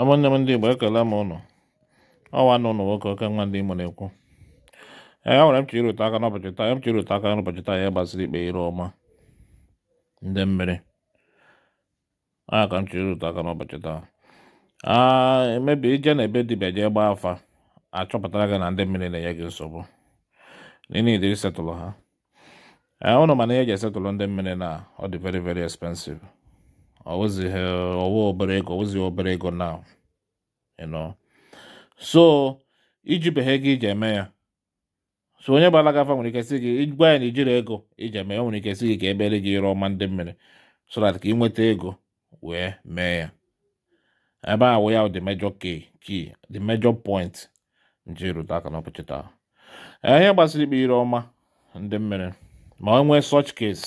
ama nne m ndị Igbo ekele m ụnụ ọwa nụ ụnụ nwoke oke nwa ndị Imo na-ekwu ee e nwere m chiri rute aka n'ụbọchị taa e m chiri rute aka n'ụbọchị taa ya gbasiri ikpe ire ọma ndị mmiri a ka m chiri rute aka n'ụbọchị taa emebi ije na ebe dibịa jee gbaa afa achọpụtara gị na ndị mmiri na-enye gị nsogbu n'ile setụlụ ha ee ụnụ mana ihe eji esetụlụ ndị mmiri na ọ dị veri veri expensive ọ wụzighị ọwa obere ego ọ wụzighị obere ego now you know so iji beghe gị iji eme ya so onye gbara gị afa nwere ike sị gị gwa ya na ijiri ego iji eme ya nwere ike sị gị ka ebere gị ire ọma ndị mmiri so that ka ị nweta ego wee mee ya ebe a wụ ya the major key key the major point nji rute aka n'ụbọchị taa ihe gbasara ikpe ire ọma ndị mmiri ma o nwee such case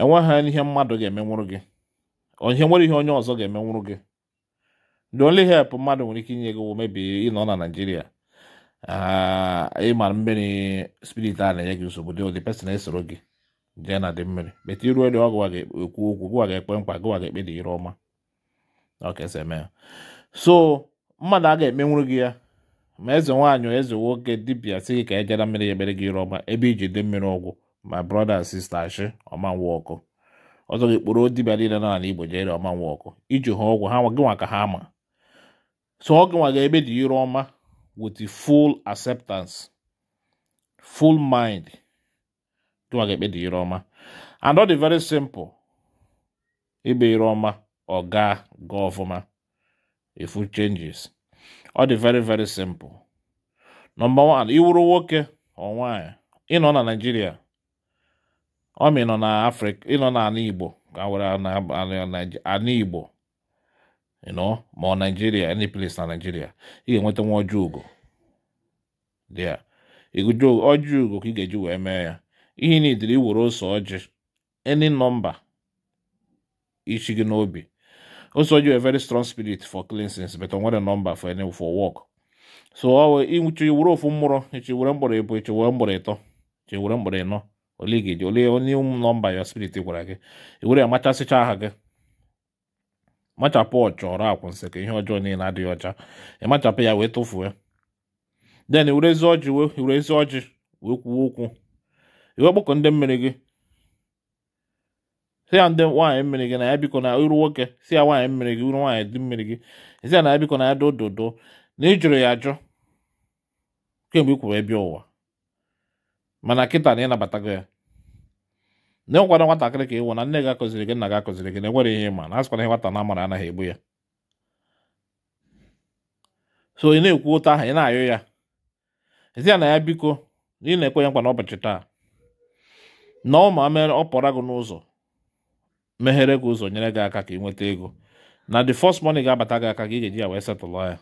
enweghị ihe mmadụ ga-emenwụrụ gị ihe nwere ihe onye ọzọ ga-eme nwụrụ gị the only help mmadụ nwere ike inye gị wụ mebi ah, ị nọ na naijiria ịmara mmiri spirit a na-enye gị nsogbu dị ụdị pesin esoro gị jee na dị mmiri bete iru elu ọgụ ga-ekwu okwu gụwa ga-ekpe mkpa gụwa ga-ekpe dị ire ọma so mmadụ a ga-emenwuru gị ya ma eze nwaanyị eze nwoke dibia si gị ka e jeda mmiri ya ekpere gị ire ọma ebe iji dị mmiri ọgwụ ma brọda sista shi ọma nwa ọkụ ọzọ ga-ekporo dibịa niile nọ n'ala Igbo jere ọma nwa ọkụ iji ha ọgwụ ha gịnwa ka ha ma so ọ gịnwa ga-ebe dị ire ọma with full acceptance full mind gịnwa ga-ekpe dị ire ọma and ọ dị very simple ibe ire ọma ọ gaa gaa ọfụma ifu changes ọ dị very very simple nọmba 1 iwuru nwoke ọ nwaanyị ịnọ na Naịjirịa ọmị nọ ịnọ na afrịka ịnọ na ala igbo ka were ala igbo ịnọ ma ọ naijiria any place na naijiria ị ga-enweta nwa ọjọọ ugo dịa ọjọọ ugo ka ị ga-eji wee mee ya ihe na idiri iwere ose ọjị any nọmba ichi gị n'obi ose ọjị were very strong spirit for cleansing but o nwere nọmba for any for work so ọ wee iwere ofu mmụrụ ichi were mgbọrọ ịbụ ichi were mgbọrọ ịtọ ichi were mgbọrọ ịnọ ole ga-eji ole onye nọmba ya spirit gwara gị ewere ya machasịcha aha gị machapụ ọchọrọ akwụnsị ka ihe ọjọọ niile adịghị ọcha ịmachapụ ya wee tụfuo ya den were ezi ọjị were ezi ọjị wee kwuo okwu iwe gbakọ ndị mmiri gị si ya ndị nwaanyị mmiri gị na ya biko na iru nwoke si ya nwaanyị mmiri gị iru nwaanyị dị mmiri gị si ya na ya biko na ya do na ị jụrụ ya ajụ kemgbe ị ebi ebe ụwa mana kịta na ịnabatago ya na nwatakịrị ka ịwụ na nne gị akụziri gị nna gị akụziri gị na enwere ihe ịma na asịkwana ihe nwata na amara anaghị egbu ya so ị na-ekwu ụta ahụ ị na ayụ ya ezi ya na ya biko na ị na-ekwe ya nkwa n'ụbọchị taa na ọ ma mere ọ pụra gị n'ụzọ meghere gị ụzọ nyere gị aka ka ị nweta ego na the first money ga-abata gị aka ka ị ga-eji ya wee setụlụ ya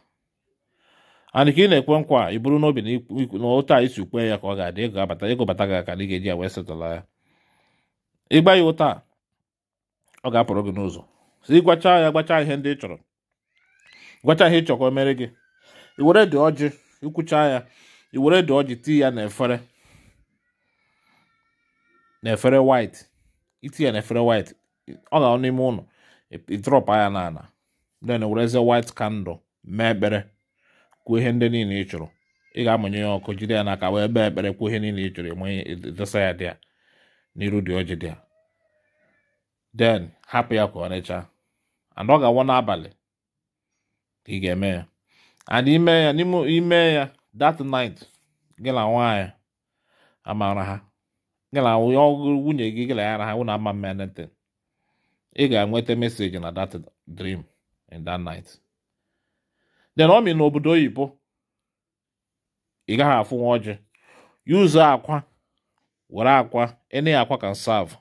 ana ka ị na-ekwe nkwa ị bụrụ n'obi na ụtọ a isi kwe ya ka ọ ga-adị ego abata ego bata gị aka na ị ga-eji ya wee setụla ya ịgba ya ụta ọ ga-apụrụ gị n'ụzọ si ịgwacha ya gbacha ihe ndị ị chọrọ gwacha ihe ị chọrọ ka o mere gị i were dị ọjị ikwucha ya i were dị ọjị tii ya n'efere n'efere white iti ya n'efere white ọ ga-anọ n'ime ụlọ ị ịtrọpa ya n'ala then were white candle mee ekpere kwuo ihe ndị niile ị chụrụ ị ga-amụnye ya ọkụ jide ya n'aka wee bee ekpere kwuo ihe niile ị chụrụ enwe desa ya dị ya n'iru dị ọjị dị ya den hapụ ya ka ọ rechaa and ọ ga awụ n'abalị ka ị ga-eme ya and ime ya n'ime ime ya that night gị na nwaanyị amara ha gị na nwunye gị gị na ya na ha wụ na ama mma ị ga-enweta meseji na that dream in that night den ọ mi na obodo oyibo ị gaghị afụ nwa ọjị yuzu akwa were akwa ene akwa kan serve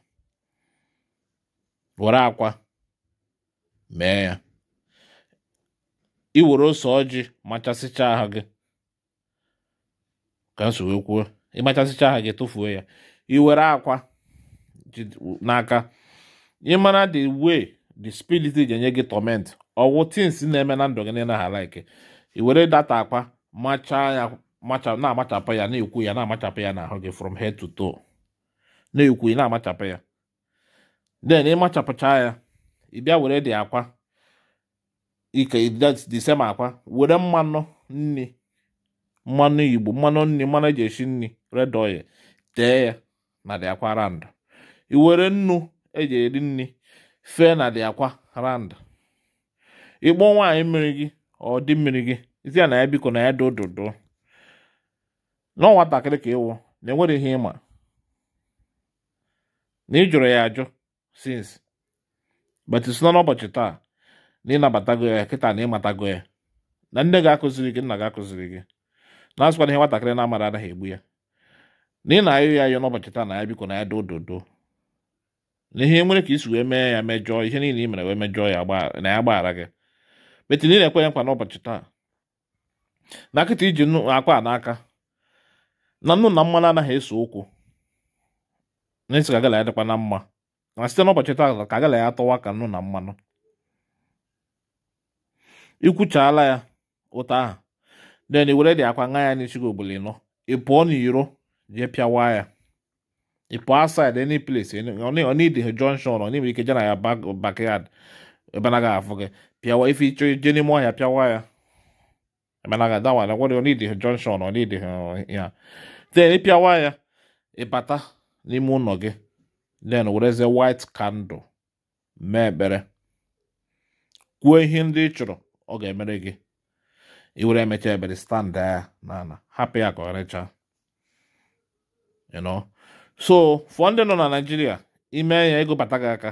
were akwa mee ya iwere ose ọjị machasịcha aha gị ka nso wee kwuo ịmachasịcha aha gị tụfuo ya iwere akwa n'aka ịmara the way the spirit ji enye gị torment ọwụ tins na-eme na ndụ gị niile ha like i were data akpa machaa ya na-amachapụ ya na-ekwu ya na-amachapụ ya n'ahụ gị from head to toe na-ekwu ya na-amachapụ ya then ịmachapụchaa ya ị bịa were dị akwa ike disema akwa were mmanụ nni mmanụ igbo mmanụ nni mmanụ eji esi nni red oil tee ya na dị akwa rand i were nnu eji eri nni fee na dị akwa rand ịkpọ nwaanyị mmiri gị ọ dị mmiri gị isi ya na ya biko na ya do dodo nọ nwatakịrị ka ịwụ na enwere ihe ịma na ị jụrụ ya ajụ sins but isi nọ n'ụbọchị taa na ịnabatago ya kịta na ịmatago ya na nne gị akụziri gị nna gị akụziri gị na-asịkwana ihe nwatakịrị na-amara anaghị egbu ya na ị na-ayụ ya ayụ n'ụbọchị taa na ya biko na ya do dodo na ihe nwere ka isi wee mee ya mejọọ ihe niile i mere wee mejọọ ya na ya gbaghara gị metinye na-ekwenye nkwa n'ụbọchị taa na nkịta iji akwa n'aka na nnu na mmanụ anaghị eso ụkwụ na-esi ka gala ya dịkwa na mma na site n'ụbọchị taa ka agala ya atọwa ka nnu na mmanụ ikwuchaala ya ụta ahụ den were dị akwa ṅa ya n'isi gị obodo ịnọ ị pụọ n'iro jee pịawa ya ị pụọ asid any place ọ na-ide junction ọ na-enwe ike je na ya backyard ebe anaghị afụ gị pịawa ife ịchọ ije n'ime ọhịa pịawa ya emenaghị adawa na gwara onidi junction onidi ya then ịpịawa ya ịbata n'ime ụlọ gị den werezie white candle mee ekpere kwuo ihe ndị ị chọrọ ọ ga-emere gị iwere emecha ebere stand ya n'ala hapụ ya ka ọ rechaa so fọ ndị nọ na Naijiria, ime ya ego bata gị aka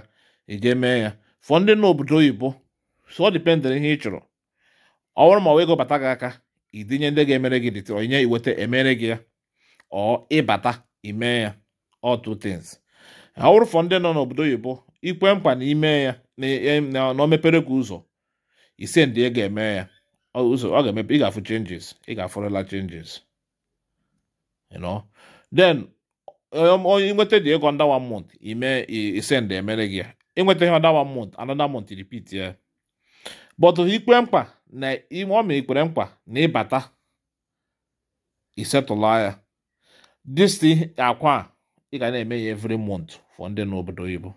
ije mee ya fọ ndị nọ obodo oyibo sọ dipendịrị ihe ị chọrọ ọ bụrụ ma ọ ego bata gị aka idinye ndị ga-emere gị dịtịrị onye iweta emere gị ya ọ ịbata ime ya ọ two tins ọ bụrụ fọ ndị nọ n'obodo oyibo ikwe mkpa na ime ya e, e, na o mepere gị ụzọ ise ndị e ga-eme ya ụzọ ọ ga-emepe ị ga-afụ changes ị ga-afụrịla changes you then um, onye nweta dị ego ndawa one ime ise ndị emere gị ya ịnweta ihe another one month another month repeat ya but ikpe mkpa na ime ọ ikpere mkpa na ịbata isetụla ya this akwa ị ga na-eme ya every month for ndị n'obodo oyibo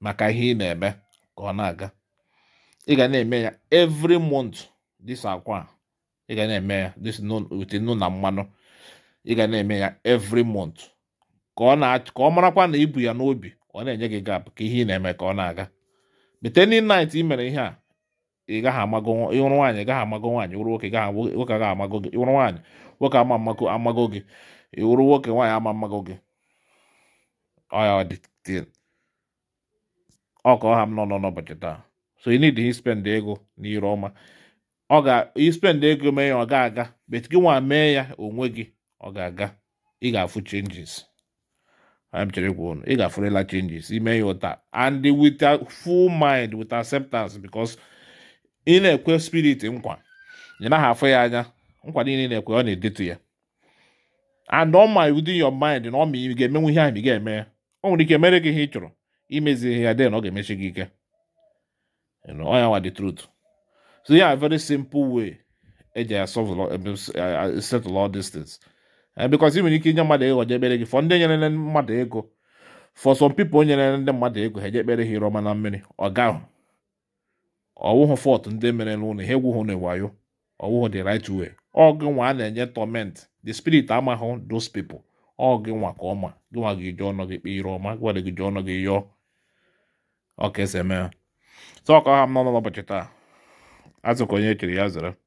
maka ihe ị na-eme ka ọ na-aga ị ga na-eme ya every month this akwa a ị ga na-eme ya this ute nnu na mmanụ ị ga na-eme ya every month ka ọ marakwa na ibu ya n'obi ọ na-enye gị gap ka ihe ị na-eme ka ọ na-aga meteni nit i mere ihe a ịgaghị amago ịhụrụ nwaanyị ịgaghị amago nwaanyị ịhụrụ nwoke nwoke agaghị amago gị ịhụrụ nwaanyị nwoke ama amago gị ịhụrụ nwoke nwaanyị ama mmago gị ọya ọ dị ọha m nọ nọ n'ụbọchị taa so ị need spend ego n'iru ọma ọ ga ispend ego mee ya ọ ga-aga bet gị nwa mee ya onwe gị ọ ga-aga ị ga-afụ changes I'm telling you, got for changes. He may and with a full mind, with acceptance, because in a queer spirit, in one, you know, halfway, I know, in a queer, on to you. And all my within your mind, and all me, you get me, we have, you get me. Only ihe make a hitro. Imezi here, then, okay, Michigan. You know, I know the truth. So, yeah, a very simple way. i solve a lot, set a Eh, because ị nwere ike inye mmadụ ego je ekpere gị fọ ndị nyere mmadụ ego for some people nyere ndị mmadụ ego ha eje ekpere ha iroma na mmiri ọ gaghị ọwụhụ fọt ndị mere n'ụlọ ihe egwughụ na wayo ọwụhụ the right way ọ gị nwa a na-enye tọment the spirit amaghụ those people ọ gị nwa ka ọma gị nwa gị jụọ ọnụ gị kpe ire ọma gwara gị jụọ ọnụ gị yọọ ọka esi eme ha sọ ọka ha m n'ọnụ n'ụbọchị taa azụkọ onye echere ya zere